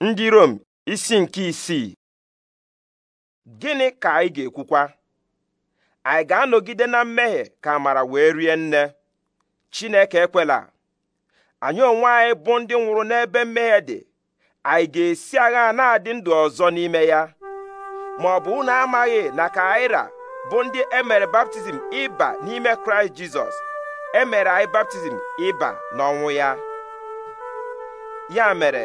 ndị Rom isi nke isii gịnị ka anyị ga-ekwukwa anyị ga-anọgide na mmehie ka amara wee rie nne Chineke ekwela anyị onwe anyị bụ ndị nwụrụ n'ebe mmehie dị anyị ga-esi agha na-adị ndụ ọzọ n'ime ya ma ọ bụ unu amaghị na ka aira bụ ndị emere baptizim ịba n'ime Kraịst Jizọs emere anyị baptizim ịba n'ọnwụ ya ya mere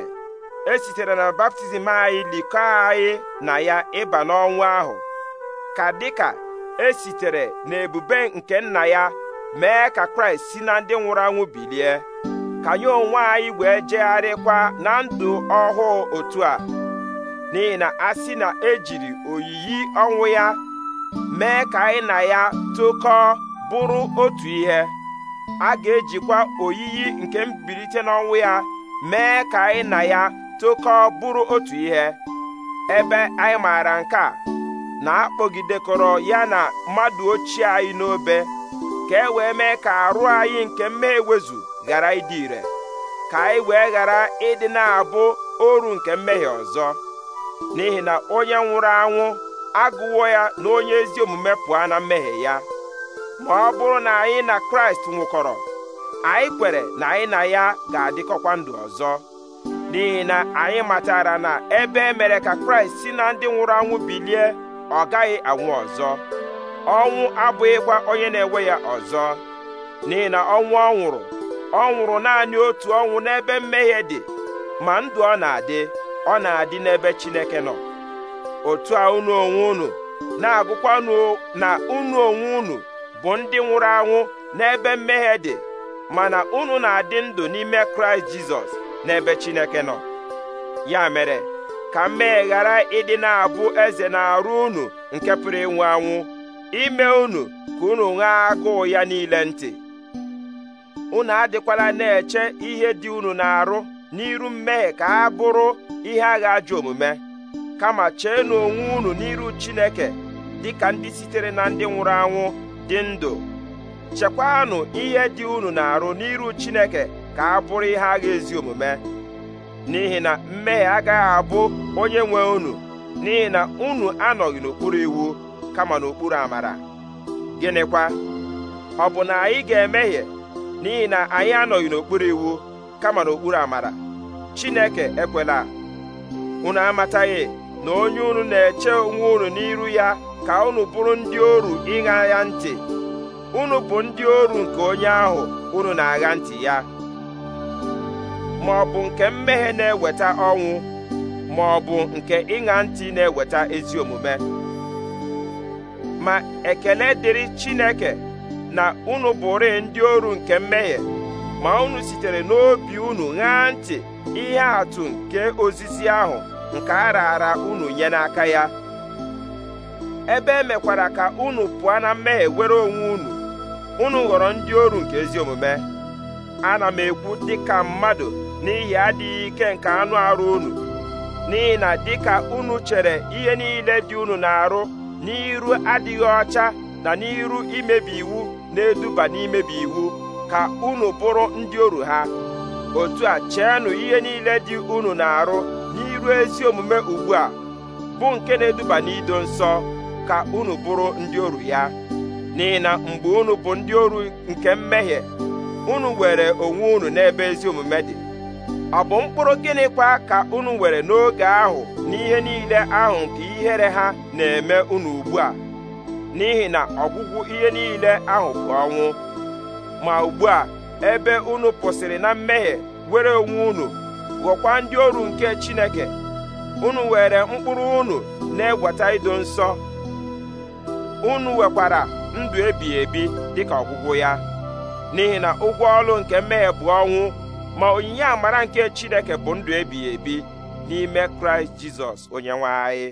e sitere na baptizim anyị likọọ anyị na ya ịba n'ọnwụ ahụ ka dịka esitere n'ebube nke nna ya mee ka kraịst si na ndị nwụrụ anwụ bilie ka anyị onwe anyị wee jegharịkwa na ndụ ọhụụ otu a n'ihi na a sị na ejiri oyiyi ọnwụ ya mee ka anyị na ya tokọọ bụrụ otu ihe a ga-ejikwa oyiyi nke mbilite n'ọnwụ ya mee ka anyị na ya tokọọ bụrụ otu ihe ebe anyị maara nke a na-akpọgidekọrọ ya na mmadụ ochie anyị n'obe ka e wee mee ka arụ anyị nke mmehie ewezu ghara ịdị ire ka anyị wee ghara ịdị na-abụ oru nke mmehie ọzọ n'ihi na onye nwụrụ anwụ agụwo ya na onye ezi omume pụọ na mmehie ya ma ọ bụrụ na anyị na Kraịst nwụkọrọ anyị kwere na anyị na ya ga-adịkọkwa ndụ ọzọ n'ihi na anyị matara na ebe e mere ka kraịst si na ndị nwụrụ anwụ bilie ọ gaghị anwụ ọzọ ọnwụ abụghịkwa onye na-enwe ya ọzọ n'ihi na ọnwụ ọ nwụrụ ọ nwụrụ naanị otu ọnwụ n'ebe mmehie dị ma ndụ ọ na-adị ọ na-adị n'ebe chineke nọ otu a unu onwe unu na-agụkwanụ na unu onwe unu bụ ndị nwụrụ anwụ n'ebe mmehie dị mana unu na-adị ndụ n'ime kraịst jizọs n'ebe Chineke nọ ya mere ka mmehie ghara ịdị na-abụ eze na-arụ unu nke pụrụ ịnwụ anwụ ime unu ka unu nwee agụụ ya niile ntị unu adịkwala na-eche ihe dị unu na-arụ n'iru mmehie ka ha bụrụ ihe agha ajọ omume kama cheenu onwe unu n'iru Chineke dị ka ndị sitere na ndị nwụrụ anwụ dị ndụ chekwanụ ihe dị unu na-arụ n'iru Chineke ka a bụrụ ihe agha ezi omume n'ihi na mmehie agaghị abụ onye nwe unu n'ihi na unu anọghị n'okpuru iwu kama n'okpuru amara gịnịkwa ọ bụ na anyị ga-emehie n'ihi na anyị anọghị n'okpuru iwu kama n'okpuru amara Chineke ekwela unu amataghị na onye unu na-eche onwe unu n'iru ya ka unu bụrụ ndị oru ịṅa ya ntị unu bụ ndị oru nke onye ahụ unu na-agha ntị ya ma ọ bụ nke mmehie na-eweta ọnwụ ma ọ bụ nke ịṅa ntị na-eweta ezi omume ma ekele dịrị Chineke na unu bụrụ ndị oru nke mmehie ma unu sitere n'obi unu ṅaa ntị ihe atụ nke ozizi ahụ nke a raara unu nye n'aka ya ebe emekwara ka unu pụọ na mmehie were onwe unu unu ghọrọ ndị oru nke ezi omume ana m ekwu dịka mmadụ n'ihi adịghị ike nke anụ arụ unu n'ihi na dịka unu chere ihe niile dị unu na-arụ n'iru adịghị ọcha na n'iru imebi iwu na-eduba n'imebi iwu ka unu bụrụ ndị oru ha otu a cheenụ ihe niile dị unu na-arụ n'iru ezi omume ugbu a bụ nke na-eduba n'ido nsọ ka unu bụrụ ndị oru ya n'ihi na mgbe unu bụ ndị oru nke mmehie unu were onwe unu n'ebe ezi omume dị ọ bụ mkpụrụ gịnịkwa ka unu were n'oge ahụ n'ihe niile ahụ nke ihere ha na-eme unu ugbu a n'ihi na ọgwụgwụ ihe niile ahụ bụ ọnwụ ma ugbu a ebe unu pụsịrị na mmehie were onwe unu ndị ọrụ nke Chineke unu were mkpụrụ unu na-egweta ido nsọ unu wekwara ndụ ebighị ebi dịka ọgwụgwụ ya n'ihi na ụgwọ ọrụ nke mmehie bụ ọnwụ ma onyinye amara nke Chineke bụ ndụ ebighị ebi n'ime Kraịst Jizọs onye nwe anyị